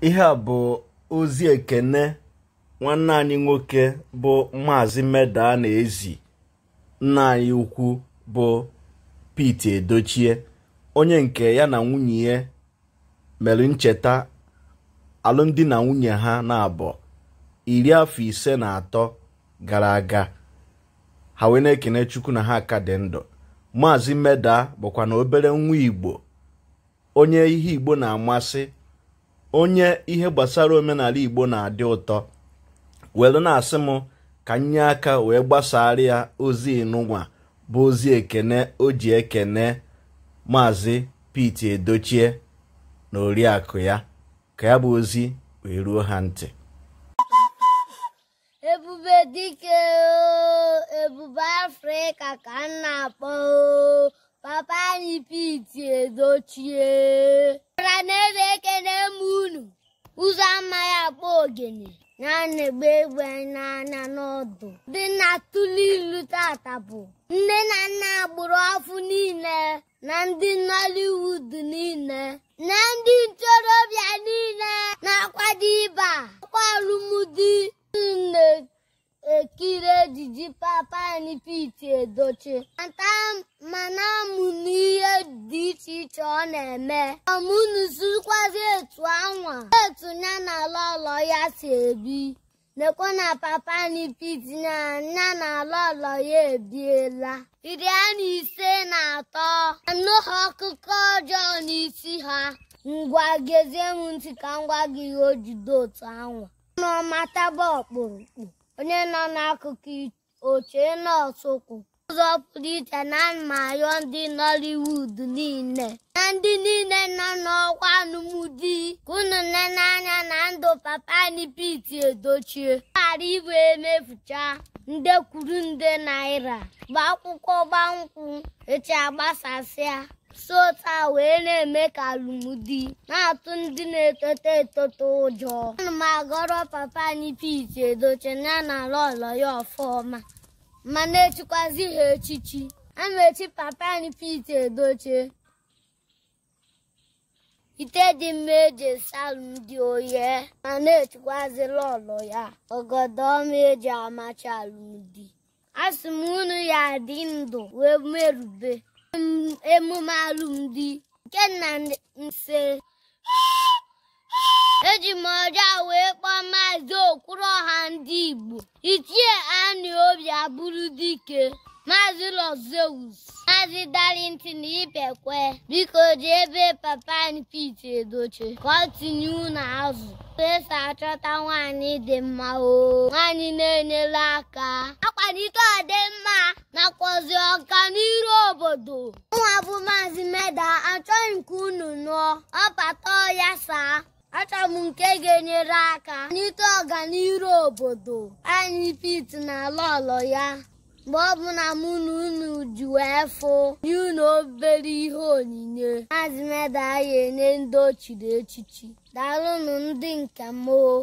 ihe a bụ ozi ekene nwanne anyị nwoke bụ maazị meda na ezi nna anyị ukwu bụ Pete Edochie onye nke ya na nwunye ya mere ncheta alụmdi na nwunye ha na-abụ iri afọ ise na atọ gara aga ha wee na-ekene Chukwu na ha ka dị ndụ maazị meda bụkwa na obere nwa igbo onye ihe igbo na-amasị onye ihe gbasara omenala igbo na-adị ụtọ welu na-asị m ka nye aka wee gbasara ya ozi ịnụnwa bụ ozi ekene o ji ekene maazị Pete Edochie na oriakụ ya ka ya bụ ozi wee ruo ha ntị ebube dike ebube afrịka ka m na-akpọ papa anyị Pete Edochie ra na ogene na-ana egbe egbe n'anya n'ọdụ dị na tụlụ ilu tata bụ nne na nna gburu afụ niile na ndị Nollywood niile ejiji Papan Pete Edochie ata mana amụ n'ihe dị iche iche ọ na-eme ọmụnụ sirikwazi etu anwa etu nya na ala ọlọ ya si ebi lekwa na papa Papan Pete na nya na ala ọlọ ya ebiela iri a na ise na atọ anụ ha ọkụkọ ọjọọ n'isi ha ngwa gezie m ntị ka ngwa gị ihe jide otu anwa ọnụ ọma taba ọkpụrụkpụ onye nọ n'akụkụ oche nọọsụ kwụ ụzọ pụrụ iche na mmayọ ndị Nollywood niile na ndị niile nọ n'ọkwa alụmdi ka unu ne n'anya na ndụ papa anyị Edochie ghara iwe emefucha nde kwuru nde naira gba akwụkwọ gbankwụ echi agbasasịa sota wee na-eme ka alụmdi na-atụ ndị na-etote etote ụjọ ana m agọrọ papa anyị Pete edoche na na ala ọlọ ya ọfọma ma na-echikwazi ha echichi a na-echi papa anyị Pete edoche, ite dị mma eji esi alụmdi oye ma na-echikwazila ọlọ ya ọgọdọ ọma eji amachi alụmdi a sị m unu ya adị ndụ wee merube emume alụmdi nke nna nse eji m ọja wee kpọọ maazị ọha ndị Igbo ichie Anị Obi abụrụ dike maazị Los Zeus maazị na Ipekwe biko ji ebe papa Pete Edochie ka ọ tinye unu azụ eso achọta nwaanyị dị mma o nwaanyị na-enyere aka akwalite ọdị obodo ụmụabụ bụ maazị meda achọghị nke unu nụọ ọpata ya saa achọrọ m nke ga-enyere aka n'ite ọganiru obodo anyị pit na lọlọ ya mgbe ọbụla mụ na unu ji wee fụ nye unu obere ihe onyinye maazị meda ya enye ndị ochiri echichi daalụnụ ndị nke mmoo